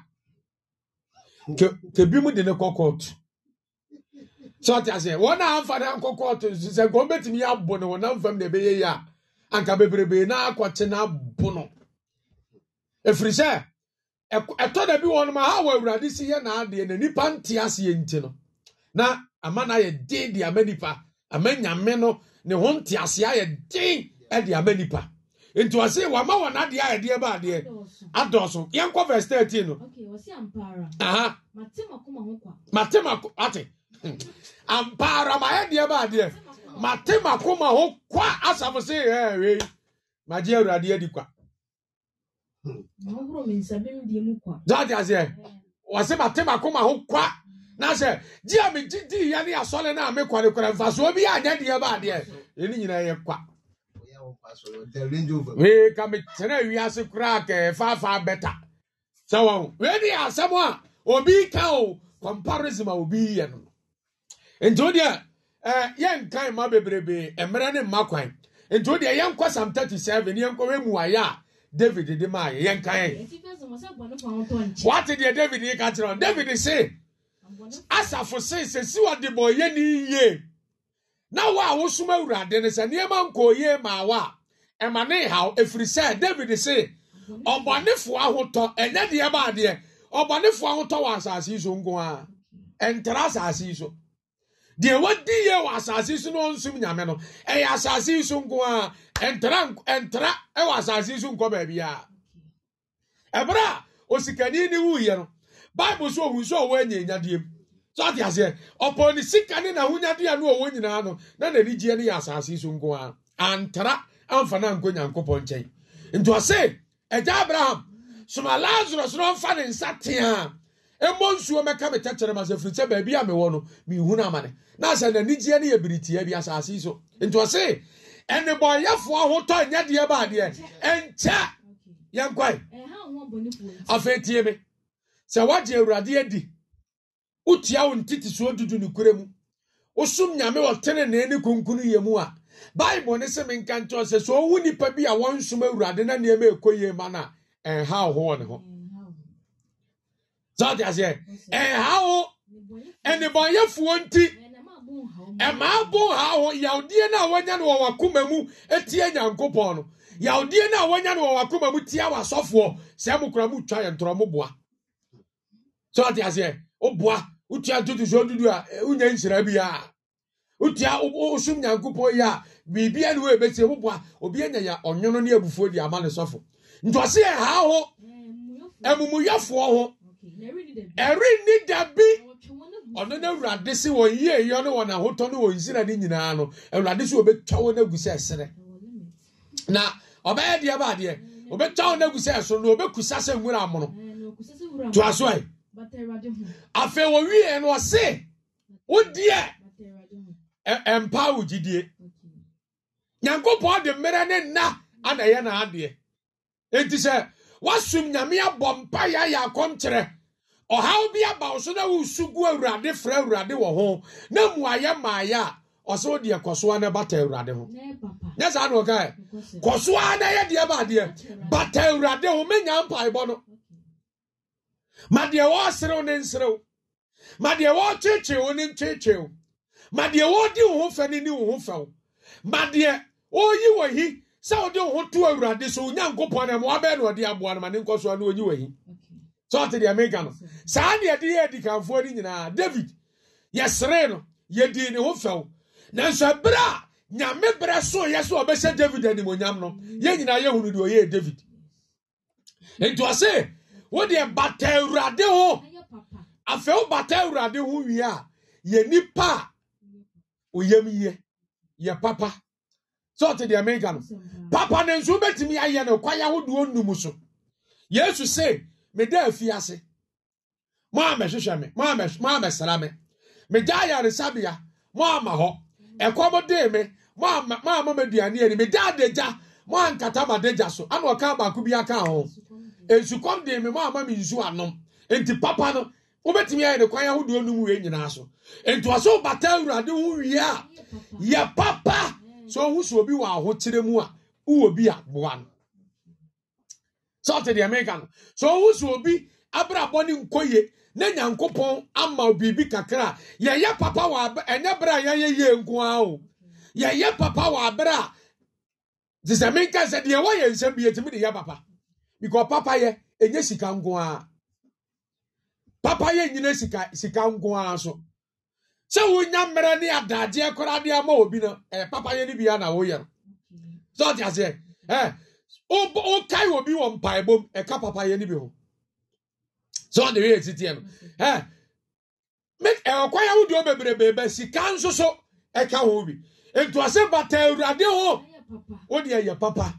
kebi mu de ne kɔ kɔɔto sɛ ɔte aseɛ wɔn a amfa ne ankɔ kɔɔto sɛ nka wɔbɛtumi abo no wɔnam fam na ɛbɛyɛ yi a anka bebrebe na akɔkye na abo no ɛfiri sɛ ɛtɔ da bi wɔnom ha wɔ awurade si yɛ n'adeɛ na nipa nte aseɛ nti no na ama na ayɛ den de ama nipa ama nyame no ne ho nte aseɛ ayɛ den de ama nipa nti wɔse wama wɔn adeɛ a yɛdeɛ ba adeɛ adɔɔso yɛnkɔ verse thirteen no mate ma ko ate ampaara ma yɛdeɛ ba adeɛ mate ma ma ho kwa asafo se ɛɛ wei magye awurade adi kwa Jọ́ọ̀tì àṣẹ, wàṣẹ màtí màkó màá hó kwa hmm. n'asɛ gye a megyedi yɛ ne asɔre no a mekɔrekɔrɛ mfasoɔ bi anyɛ deɛ ba adeɛ ɛne nyinaa yɛ kwa wei ka metena wiase koraa kɛɛfaafaa bɛta sɛ wɔ wei ne yɛ asɛm a obi ka o comparison a obi yɛ no nti wodeɛ yɛnkan ma bebrebee mmerɛ ne mma kwan nti wodeɛ yɛnkɔ sam 37 yɛnkɔ wɛmuayɛ a david de maa yɛyɛ wati di deɛ david yi ka kyerɛ david si asafo se sɛsi wɔde bɔ yɛ ni yie na wo a wosom awurade no sɛ nneɛma nkɔɔ yie maa wo a ɛma ne haw ɛfiri sɛ david si ɔbɔnefoɔ ahotɔ ɛnyɛ deɛ baadeɛ ɔbɔnefoɔ ahotɔ wɔ asase yi so nko a ɛntara e asase yi so deɛ wadi yɛ wɔ asase so na ɔnsom nyame no ɛyɛ asase so nko a ɛntra ɛntra ɛwɔ asase so nkɔ baabi a ɛbrɛ a osikani ne wuyɛ no bible so ohun so ɔwɔ anya enyadeɛ mu so ate aseɛ ɔpɔ ne sika ne n'ahonyadeɛ a no ɔwɔ nyinaa no na n'anigyeɛ no yɛ asase so nko a antra amfa no ankɔ nyankopɔn nkyɛn nti ɔse agya abraham soma lazarus no ɔmfa ne nsa tea ɛmmɔ nsuo mɛka me tɛkyerɛ ma sɛ firi sɛ baabi a mewɔ no na amane na sɛ n'anigyeɛ no yɛ biritia bi asase yi so nti ɔse ɛnebɔyɛfoɔ ho tɔ nyɛ deɛ baadeɛ ɛnkyɛ yɛnkwae afei tie me sɛ woagye awurade adi wotia wo dudu mu wosom nyame ne kunkunu yɛ mu a bible ne se menka nkyɛw sɛ sɛ ɔwu nnipa bi a wɔnsom awurade na nneɛma ɛkɔ yie ma no a ɛnha ho wɔ ne ho sɛteaseɛ ɛha wo ɛnebɔnyɛfoɔ nti ɛma eh, abo ha eh, wo yawdeɛ no a wanya no wɔwakoma mu eh, tia nyankopɔn no yawdeɛ no a wanya no wɔwakoma mu tia wasɔfoɔ sɛ mo kora motwa yɛ ntorɔmoboa sɛteaseɛ woboa wotua ntotosoɔ dudu a wonya nhyira biaa wotua wosom nyankopɔn yi a biribia ne wɔɛbɛsie woboa obi anya yɛ ɔnwono ne abufuo de ama ne sɔfo nti ɔse ɛha ho amumuyɛfoɔ ho ɛrenni da bi ɔno no awurade sɛ wɔn yie yɔ ne wɔn ahotɔ ne wɔn nsira ne nyinaa no awurade sɛ wɔbɛtwa wɔn agu sɛ ɛsere na ɔbɛyɛ deɛ ba adeɛ wɔbɛtwa wɔn agu sɛ ɛsoro na wɔbɛkusa sɛ nwura amono to aso ayi afei wɔwie no ɔse wodeɛ ɛmpa wo nyankopɔn de mmerɛ ne nna ana ɛyɛ sɛ woasom nyame abɔ mpa yɛayɛ akɔmkyerɛ ɔhaw bi aba wo so na wosu gu awurade frɛ awurade wɔ ho na mmuayɛ maayɛ a ɔsɛ wode kɔsoa no bata awurade ho nyɛ saa ne eh, kɔsoa na yɛ deɛ baadeɛ bata awurade ho mɛnya mpaebɔ no ma deɛ wɔɔserew ne nserew ma deɛ wɔɔkyekyere ne ma deɛ wɔdi wo ho fɛ ne ne wo ho ma deɛ wɔ hi sɛ wode wo ho to awurade so onyankopɔn ne mmoabɛɛ na ɔde aboa no ma ne nkɔ soa na ɔnyi wahi sɛ ɔte deɛ meka no saa ne yɛde yɛ adikanfoɔ no nyinaa david yɛseree no yɛdii ne ho fɛw nanso ɛberɛ a nyame berɛ soyɛ sɛ ɔbɛhyɛ david animonyam no yɛn nyinaa yɛhunu deɛ ɔyɛɛ david nti ɔse wodeɛ bata awurade ho afei wobata awurade ho wie a yɛ nipa a oyam yɛ yɛ papa sɛɔte deɛ meka no papa ne ya na ayɛ ya kwaya hodoɔ num so yesu se meda efi ase mo amɛhwehwɛ me mo amɛsra me megya ayaresabea mo ama hɔ ɛkɔm dee me mo ama maduane ani meda adagya mo ankata madagya so ana ɔka baako bi aka ho nsukɔm dee me mo ama me nsu anom nti papa no wobɛtumi ayɛ ne kwan ahodoɔ num wei nyinaa so nti ɔso wobata awurade ho wie a yɛ papa sɛ ɔhu so obi wɔ ahokyerɛ mu a wowɔ e bi a boa no sɛ ɔte deɛ meka no sɛ ɔhu so obi abrabɔ ne nkɔ ye na nyankopɔn ama biribi kakra a yɛyɛ papa wɔ ɛnyɛ berɛ a yɛyɛ yie nko ara o yɛyɛ papa wɔ aberɛ a te sɛ menka sɛ deɛ wɔyɛ nsɛm bi yɛtumi de yɛ papa because papa yɛ ɛnyɛ sika nko papa yɛ nyina sika sika nko so sɛ wonya mmerɛ ne adadeɛ koraa de ama obi no papa papayɛ no bia na woyɛ no sɛ ɔte aseɛ ɛ wokae obi wɔ mpaebom ɛka papayɛ no bi ho sɛ ɔde weyɛ titiɛ no ɛ ɛwɔkwae ahodoɔ bebrebe ba sika nso so ɛka ho bi ntoase bata awurade ho wode ɛyɛ papa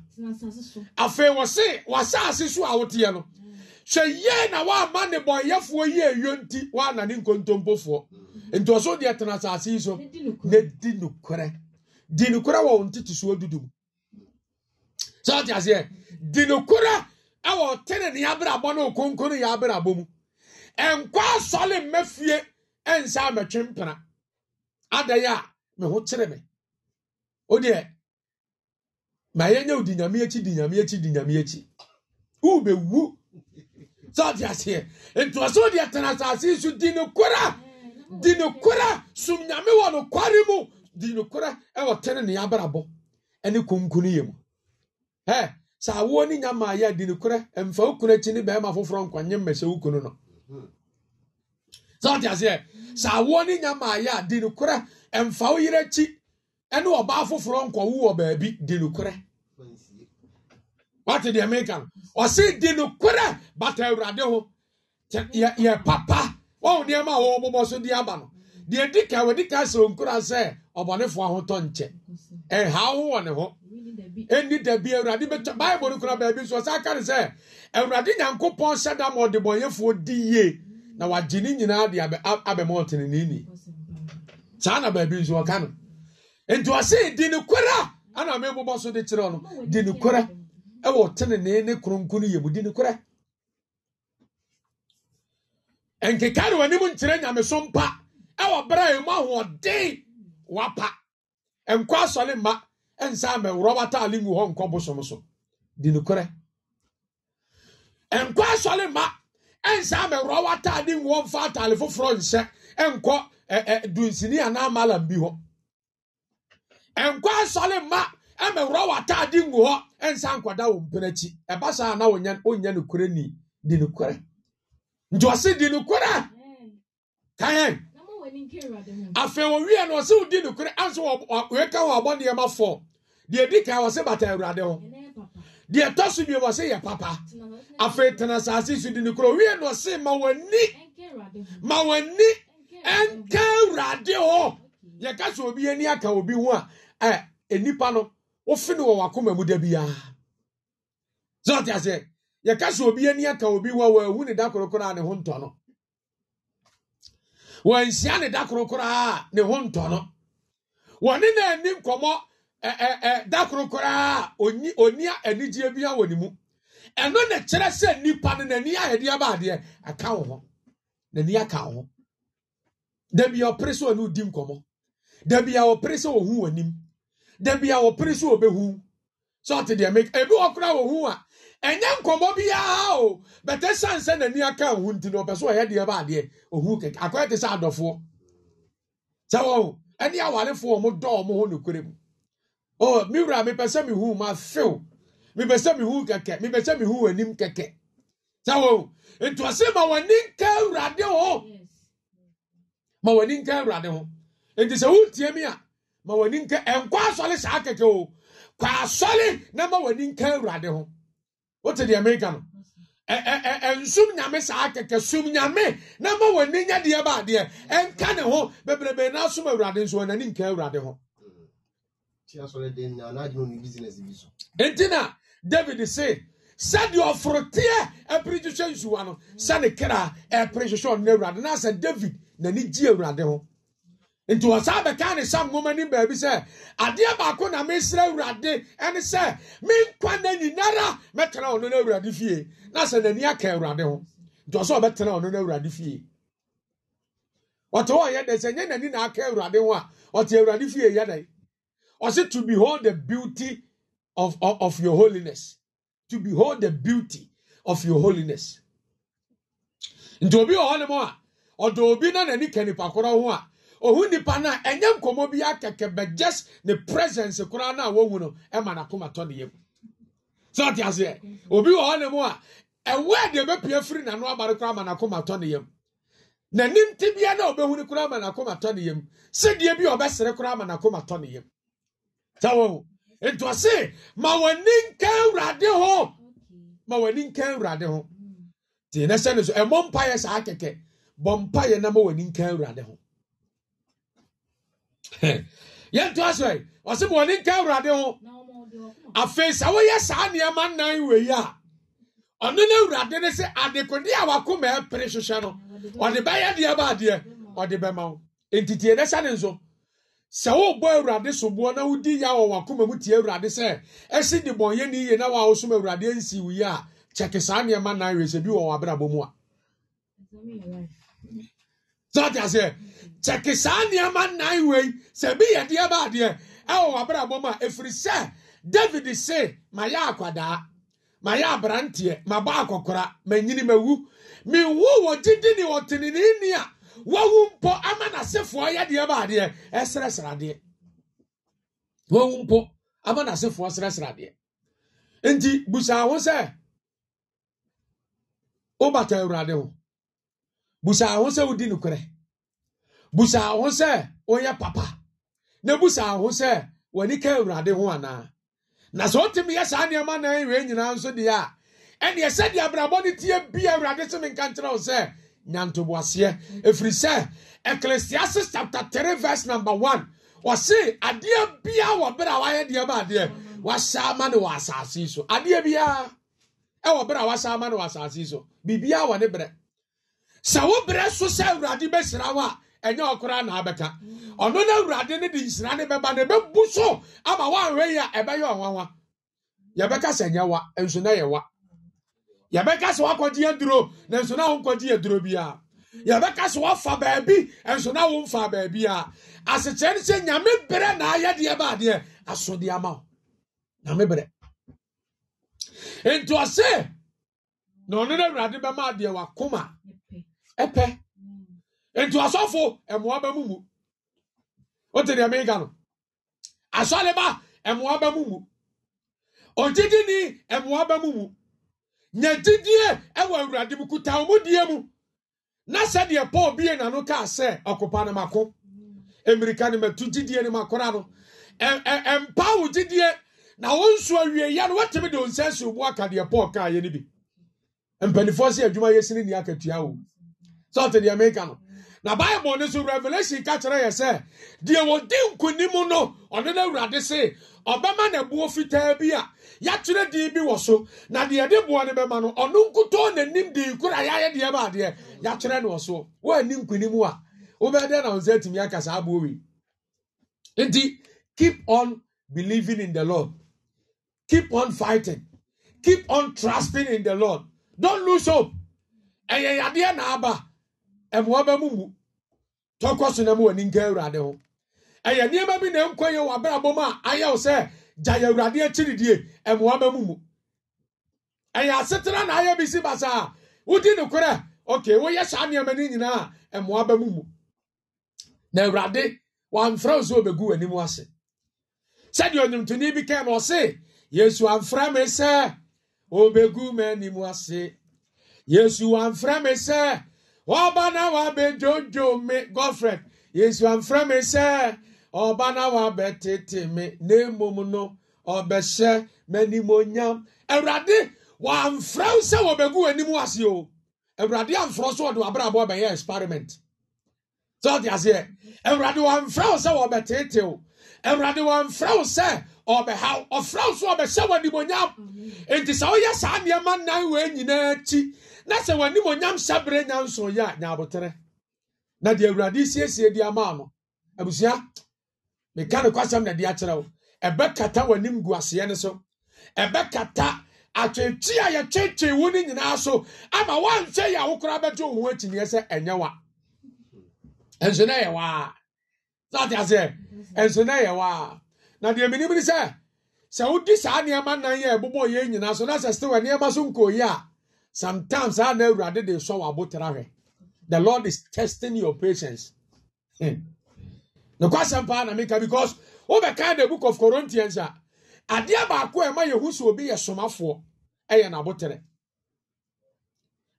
afei wɔse wasase so a woteɛ no mm. sɛ yie na waama ne yi nti ne nkontompofoɔ nti ɔso deɛ tena asase yi so na di nokorɛ di nokorɛ wɔ soɔ dudu mu sɛ ɔte aseɛ di nokorɛ ɛwɔ tene ne abrabɔ ne okonkono yɛ abrabɔ mu ɛnkɔ asɔle mma fie ɛnsa mɛtwe ada ya a me ho me oh, ma di nyame akyi di nyame akyi di nyame sɛde aseɛ nti ɔ sɛ wode ɛtena asase yi so di nokora di nokora som nyame wɔ nokware mu di nokora ɛwɔ tene ne abrabɔ ɛne konkun yɛ mu ɛ sɛ awoɔ ne nyamaa yɛ di nokora ɛmfa wo kunu akyi ne bɛrima foforɔ nkwanye mmɛ sɛ wo kunu no sɛde aseɛ sɛ awoɔ ne nyamaa yɛ di nokora ɛmfa wo yere akyi ɛne ɔbaa foforɔ nkɔwo wɔ baabi di nokora wate deɛ meka no ɔse di nokora bata awurade ho yɛ papa wɔn nneɛma a wɔn bobɔ so de aba no deɛ di ka wɔdi ka sɛ nkura sɛ ɔbɔnefoɔ ahotɔ nkyɛ ɛhaw ho wɔ ne ho ɛnni dabi awurade bɛtɔ baibul no kura baabi nso ɔsan aka ne sɛ awurade nyankopɔn hyɛ da ɔdebɔnyɛfoɔ di yie na wagye ne nyinaa de abɛmɔ ɔteneneni saa na baabi nso ɔka no nti ɔse di ne kora ana mebobɔ so de kyerɛ no di ne ɛwɔ ne yɛ mu di ne nkeka ne w'anim nkyerɛ nyameso mpa ɛwɔ berɛ a ɛmu ahoɔden wapa nkɔ asɔre mma nsa amɛworɔ wataale ngu hɔ nkɔ bosom so di nokorɛ nkɔ asɔre mma nsa ngu hɔ ataale foforɔ nhyɛ nkɔ ɛɛ dunsini anaa bi hɔ nkɔ mma ngu hɔ nsa nkɔda wɔn na wɔnyɛ wɔnyɛ ni di nti ɔsi di nukura kaayɛ afei owiɛ no ɔsi di nukura anso ɔyɛka wɔ abɔ nneɛma fɔ deɛ di kan ɔsi bata awurade ho deɛ tɔ bi ɔsi yɛ papa afei tena saasi so di nukura owiɛ no ɔsi ma w'ani ma w'ani ɛnka awurade ho yɛka sɛ obi ani aka obi ho a ɛ enipa no wofi no wɔ wakoma mu da biara zɔn ti aseɛ yɛka sɛ obi ani aka obi wɔ wɔahu ne da korokoro a ne ho ntɔ no wɔanhyia ne da korokoro a ne ho ntɔ no wɔne na ani nkɔmmɔ da korokoro a ɔni anigyeɛ bia wɔ ne mu ɛno na kyerɛ sɛ nnipa no n'ani ahɛdeɛ baadeɛ aka wo ho n'ani aka wo ho da bia ɔpere sɛ ɔne odi nkɔmmɔ da bia ɔpere sɛ ɔhu w'anim da bia ɔpere sɛ ɔbɛhu sɛ ɔte deɛ ebi wɔ koraa wɔhu a ɛnyɛ nkɔmɔ biara o bɛtɛ san sɛ n'ani aka owu nti na ɔpɛ so ɔyɛ deɛ ba adeɛ owu kɛkɛ akɔyɛ te sɛ adɔfoɔ sɛ wɔn ɛne awarefoɔ wɔn dɔ wɔn ho nokorɛ mu o mi wura mi pɛ sɛ mi hu ma few mi pɛ sɛ mi hu kɛkɛ mi pɛ sɛ mi hu anim kɛkɛ sɛ wɔn ntuase ma wɔn ani nka awurade ho ma wɔn ani nka awurade ho nti sɛ wɔn tie mi a ma wɔn ani nka nkɔ asɔre saa kɛkɛ o kɔ asɔre na ma wɔn ani nka awurade ho wote deɛ meka no nsum nyame saa kɛkɛ sum nyame na ma w'ani nya deɛ ba adeɛ ɛnka ne ho bebrebe na som awurade nso ɔnani nka awurade ho enti na david se sɛdeɛ ɔforoteɛ ɛpere hwehwɛ nsuwa no sɛne kra ɛpere hwehwɛ ɔno awurade na sɛ david n'ani gye awurade ho nti wɔ saa ne sam nwoma nim baabi sɛ adeɛ baako na mesrɛ awurade ɛne sɛ menkwa na nyinara mɛtena ɔno no awurade fie na sɛ n'ani aka awurade ho nti ɔsɛ ɔbɛtena ɔno no awurade fie ɔte hɔ yɛ dɛ sɛ nyɛ n'ani na aka awurade ho a ɔte awurade fie yɛ dɛ ɔsɛ to behold the beauty of, of, of your holiness to behold the beauty of your holiness nti obi wɔ hɔ nom a ɔdɔ obi na n'ani ka nipa korɔ ho a ohu nipa no a ɛnyɛ nkɔmmɔ bi akɛkɛ but just ne presence koraa no a no ɛma n'akoma tɔ ne yam sɛ ɔte aseɛ obi wɔ hɔ ne mu a ɛwɔ a deɛ ɛbɛpia firi n'ano aba koraa ama n'akoma tɔ ne yam n'anim te bia na ɔbɛhu no koraa ama n'akoma tɔ ne yam sɛdeɛ bi a ɔbɛsere koraa ama n'akoma tɔ ne yam sɛ wɔn nti ɔse ma w'ani nka awurade ho ma w'ani nka awurade ho tie na sɛ no so ɛmɔ mpaeɛ saa kɛkɛ bɔ mpaeɛ na ma w'ani nka awurade ho yɛnto asɛ ɔse ma ɔne nka awurade ho afei sɛ woyɛ saa nneɛma nnan wei a ɔno no awurade ne sɛ adekode a wakoma ɛpere hwehwɛ no ɔde bɛyɛ deɛ baadeɛ ɔde bɛma wo ntitie dɛ hyɛ ne nso sɛ wobɔ awurade soboɔ na wodi ya wɔ wakoma mu tie awurade sɛ ɛsi de bɔnyɛ ne yie na wawosom awurade ansi wo yi a kyɛke saa nneɛma nnan wei sɛ bi wɔ wɔ abrabɔ mu a kyɛke saa nneɛma nnan wei sɛ bi yɛ deɛ ba adeɛ ɛwɔ w'abrabɔ mu a ɛfiri sɛ david se mayɛ akwadaa mayɛ aberanteɛ mabɔ akɔkora manyini ma wu wɔ gyidi ne ni a wawu mpo ama n'asefoɔ yɛ deɛ ba adeɛ eh, ɛsrɛsrɛ adeɛ wawu mpo ama n'asefoɔ srɛsrɛ adeɛ nti busa ho sɛ wobata awurade ho busa ho sɛ wodi nokorɛ busaa ho sɛ onyɛ papa na busaa ho sɛ w'ani ka awurade ho anaa na sɛ wotumi yɛ saa nneɛma na ɛwɛ nyinaa nso deɛ a ɛneɛ sɛdeɛ abrabɔ no tie bia awurade so menka nkyerɛ wo sɛ nyantoboaseɛ ɛfiri sɛ ecclesiastes chapter three verse number one. ɔse adeɛ biaa wɔ berɛ a wayɛ deɛ ba adeɛ wahyɛ ama ne wɔ asase so adeɛ biaa ɛwɔ berɛ a wahyɛ ama ne wɔ asase yi so biribiaa wɔ ne berɛ sɛ wo berɛ so sɛ awurade bɛhyira wo a ɛnyɛ ɔkoraa na abɛka ɔno no awurade no de nhyira ne bɛba no ɛbɛbu so ama woanhwɛ yi a ɛbɛyɛ ɔwanwa yɛbɛka sɛ nyɛ wa nso na yɛ wa yɛbɛka sɛ woakɔgye aduro na nso na wonkɔgye aduro biara yɛbɛka sɛ woafa baabi nso na womfa baabi a asekyerɛ no sɛ nyame berɛ na ayɛdeɛ baadeɛ asodeɛ ama wo nyame berɛ nti na ɔno no awurade bɛma adeɛ wakoma ɛpɛ nti ɔsɔfo ɛmoa bɛ mu mu wote deɛ meka no asɔleba ɛmoa bɛ mu mu ogyidini ɛmoa bɛ mu mu nyɛgyidie ɛwɔ awurade mu kuta wɔn die mu na sɛdeɛ paul bie n'ano kaa sɛ ɔkopa ne mako emirika ne mɛtu gyidie ne makora no ɛmpawo gyidie na wɔn nso awie ya no wɔtɛmi de nsa esi obu aka deɛ paul kaa yɛ ne bi mpanyinfoɔ si adwuma yɛ si ne ni akatua o sɔɔte deɛ meka no. na bible no so revelation ka kyerɛ yɛ sɛ deɛ wɔdi nkonim no ɔno no awurade se ɔbɛma ne boɔ fitaa bi a yɛatwerɛ din bi wɔ so na deɛ de boɔ no bɛma no ɔno nkutɔ n'anim de kora yɛayɛ deɛ ba adeɛ yɛatwerɛ no wɔ so woanni nkonim a wobɛdɛ na wo sɛ atumi aka saa boɔ wei nti keep on believing in the lord keep on fighting keep on trusting in the lord don't lose hope ɛyɛ yadeɛ na aba mmoa bɛ mu mu tɔkɔ so na mu w'ani nka awurade ho ɛyɛ nneɛma bi na nkɔ yɛ wɔ abrabɔ mu a ayɛ wo sɛ gya yɛ awurade akyiridie mmoa bɛ mu mu ɛyɛ asetena na ayɛ bi si basaa wodi ne korɛ okay woyɛ saa nneɛma no nyinaa mmoa bɛ mu mu na awurade wamfrɛ wo sɛ obɛgu w'anim ase sɛdeɛ ɔnwomtoni bi kɛm ɔse yesu amfrɛ me sɛ obɛgu m'anim ase yesu amfrɛ me sɛ ọba na wabɛdwodwo me gofred yesu amfrɛ me sɛ ɔba na wabɛtete me ne mmom no ɔbɛhyɛ m'animonyam awurade wɔamfrɛ wo sɛ wɔbɛgu w'anim ase o awurade amfrɛ so ɔde w'abrabɔ bɛyɛ experiment sɛ ɔde aseɛ awurade wɔamfrɛ wo sɛ wɔbɛtete wo awurade wɔamfrɛ wo sɛ ɔbɛhaw ɔfrɛ wo so ɔbɛhyɛ w'animonyam enti sɛ woyɛ saa nneɛma nan wei nyinaa akyi na sɛ w'anim onyam hyɛbere nyanson yɛ a nyaabotere na deɛ awurade siesie de ama no abusua meka no kwasɛm na de akyerɛ wo ɛbɛkata w'anim gu aseɛ no so ɛbɛkata atwetwe a yɛtwetwe wo no nyinaa so ama woanhwɛ yɛ a wo koraa bɛgye wo ho akyiniɛ sɛ ɛnyɛ wa ɛnso na ɛyɛ waa sate aseɛ ɛnso na ɛyɛ waa na deɛ menim ne sɛ sɛ wodi saa nneɛma nan yɛ ɛbobɔ yɛ nyinaa so na sɛ sɛ wɔ nneɛma so nkɔyi a sometimes I never did they saw about The Lord is testing your patience. The hmm. question pa na because over kind the book of Corinthians a ade abaako a ɛma yehu so obi yɛ somafoɔ ɛyɛ n'abotere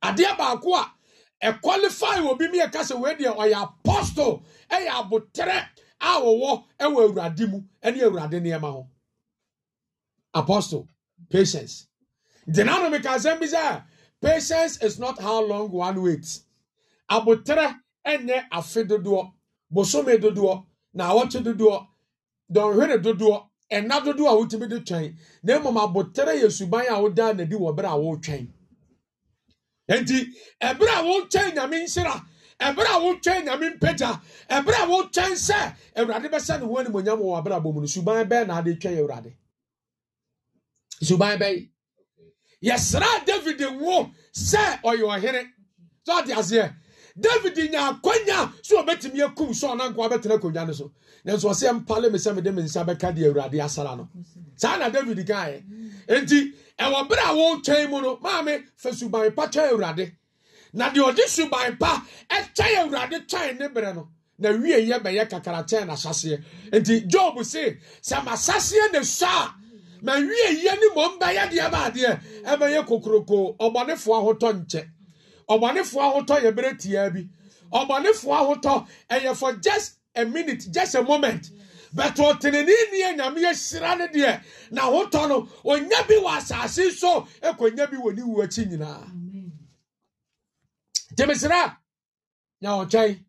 ade abaako a ɛkwalifai obi mi yɛ kasa wei deɛ ɔyɛ apostol ɛyɛ abotere a wɔwɔ ɛwɔ awurade mu ɛne awurade nneɛma ho apostol patience ntina no meka asɛm bi sɛ patience is not how long one waits abotere ɛnyɛ afe dodoɔ bosome dodoɔ na awɔkye dodoɔ dɔnhwere dodoɔ ɛna dodoɔ a wotumi de twɛn na mmom abotere yɛ suban a wodaa n'adi wɔ bere a wotwɛn nti ɛbere a wotwɛn nyame nhyira ɛbere a wotwɛn nyame mpagya ɛbere a wotwɛn sɛ awurade bɛsɛ ne ho animonyam wɔ abrabɔ mu no suban bɛɛ na ade twɛn awurade suban bɛɛ yɛsrɛ david wo sɛ ɔyɛ ɔhene sɛ ɔde aseɛ david nya akwanya sɛ ɔbɛtumi akum sɛ ɔna nkoa bɛtena akonnwa no so nanso ɔsɛ mpale me sɛ mede me nsa bɛka de awurade asara no saa na david kaeɛ enti ɛwɔ berɛ a wɔretwɛn mu no maame fa suban pa kyɛ awurade na deɛ ɔde suban pa ɛkyɛ awurade twɛn ne berɛ no na wie yɛ bɛyɛ kakra kyɛn n'asaseɛ enti job se sɛ m'asaseɛ na sua a mawie yie ne mmom bɛyɛ deɛ ma adeɛ ɛbɛyɛ kokoroko ɔbɔnefoɔ ahotɔ nkyɛ ɔbɔnefoɔ ahotɔ yɛ bere tiaa bi ɔbɔnefoɔ ahotɔ ɛyɛ for just a minute just a moment bɛtɛ ɔtenene nie nyame yɛhyira no deɛ na ahotɔ no ɔnya bi wɔ asase so ɛkɔnya bi wɔ ne wu akyi nyinaa gyemesera nya ɔkyɛn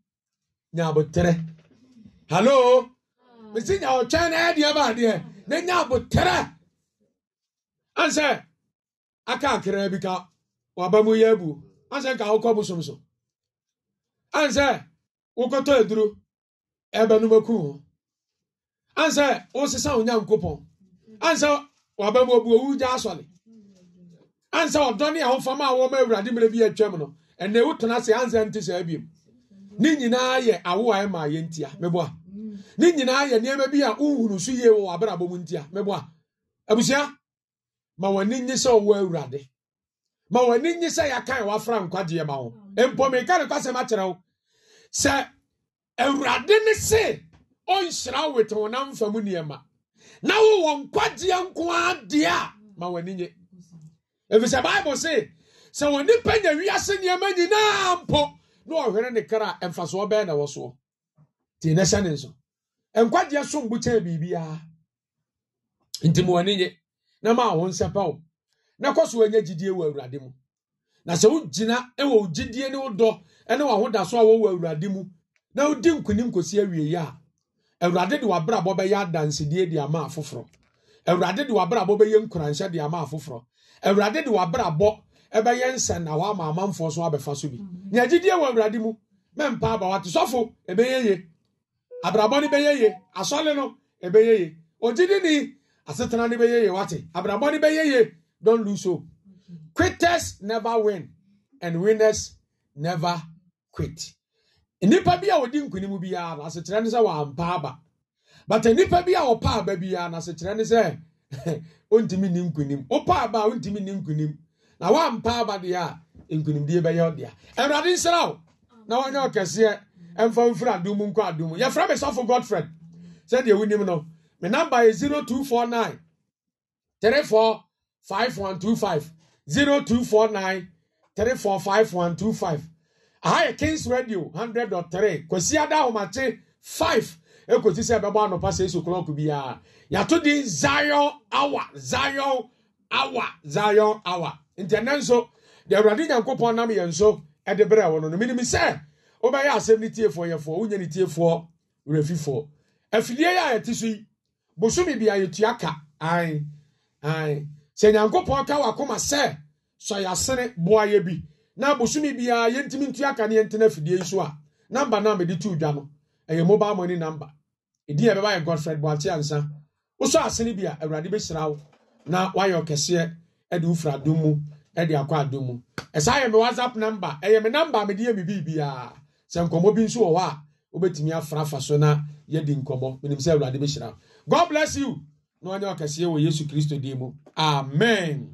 nya aboterɛ hallo mesi nya ɔkyɛn na ɛdeɛ baadeɛ na nya aboterɛ ansɛ aka akra bi ka waba mu yɛ a ansɛ ka wokɔ bosomso ansɛ wokɔtɔ aduro ho ansɛ ansɛ waba mu owu gya ansɛ a a wɔma awurade mmerɛ bi atwam no se ansɛ ebiem. ne nyinaa yɛ awo a ɛma yɛ ntia meboa ne nyinaa bi a wohunu so yie wɔ abrabɔ mu ntia abusua ma wɔn ani nye sɛ ɔwɔ awurade ma wɔn ani nye sɛ yɛakan wafra nkwagyeɛ ma wo mpɔmika ne kwasɛm akyerɛ wo sɛ awurade e ne se ɔnhyira wo te wo nam fam nneɛma na wowɔ nkwagyeɛ nko ara deɛ a ma wɔn ani nye efisɛ bible se sɛ wɔn nipa nya wiase nneɛma nyinaa mpo na ɔhwere ne kra mfasoɔ bɛɛ na ɛwɔ soɔ te ne hyɛ ne nso nkwagyeɛ so mbukyɛn biribiara nti ma wɔn nye. na ma wo nsɛpa wo na kɔ so wanya gyidie wɔ awurade mu na sɛ wogyina wɔ gyidie ne wodɔ ne wahodaso a wɔwɔ awurade mu na wodi nkonim kɔsi awieyi a awurade de wabrabɔ bɛyɛ adansedie de ama afoforɔ awurade de wabrabɔ bɛyɛ nkuranhyɛ de ama afoforɔ awurade de wabrabɔ ɛbɛyɛ nsɛn na wama amanfoɔ so abɛfa so bi nea gyidie wɔ awurade mu mɛmpa aba wate sɔfo ɛbɛyɛ ye abrabɔ no bɛyɛ ye asɔle no ɛbɛyɛ ye ogyidi ni asetena ne bɛyɛ yie wate abrabɔ ne bɛyɛ yie don lose hope quitters never win and winners never quit nnipa bi a wɔdi nkunim biara na asekyerɛ ne sɛ wɔampa aba but nnipa bi a wɔpa aba biara na asekyerɛ ne sɛ ɔntumi ni nkunim wopa aba a ɔntumi ni nkunim na wɔampa aba deɛ a nkunimdie bɛyɛ ɔdea awurade nsira wo na wɔnyɛ ɔkɛseɛ ɛmfa mfiri adum nkɔ adum yɛfrɛ me sɔfo godfred sɛdeɛ wonim no me number is 0249 345125 0249 345125 aha yɛ kings radio 100.3 kwasi ada ahomakye 5 ekosi sɛ ɛbɛbɔ anɔpa sɛ esu klɔk biara yàtò di zion hour zion hour zion hour ntɛnɛ nso deɛ awurade nyankopɔn nam yɛn nso ɛde brɛ wɔ no no minim sɛ wobɛyɛ asɛm ne tiefoɔ yɛfoɔ wonyɛ ne tiefoɔ werɛfifoɔ afidie yɛ a yɛte so yi Bosumi bi ayɛtua ka ae ae sɛ nyankopɔn ka wakoma sɛ sɛ yɛasene boayɛ bi na bosome biara yɛntumi ntua ka ne yɛntena afidie so a namba na mede to dwa no ɛyɛ mobile money number ɛdin a ɛbɛba yɛ godfred boakye ansa wosɔ asene bi a awurade bɛhyira wo na woayɛ ɔkɛseɛ de wofira adom mu de akɔ adom mu ɛsaa yɛ me whatsapp number ɛyɛ me number a mede yɛ me biribiara sɛ nkɔmmɔ bi nso wɔ hɔ a wobɛtumi afra afa so na yɛdi nkɔmmɔ menim sɛ awurade bɛhyira wo god bless you na ɔnyɛ ɔkɛseɛ wɔ yesu kristo din mu amen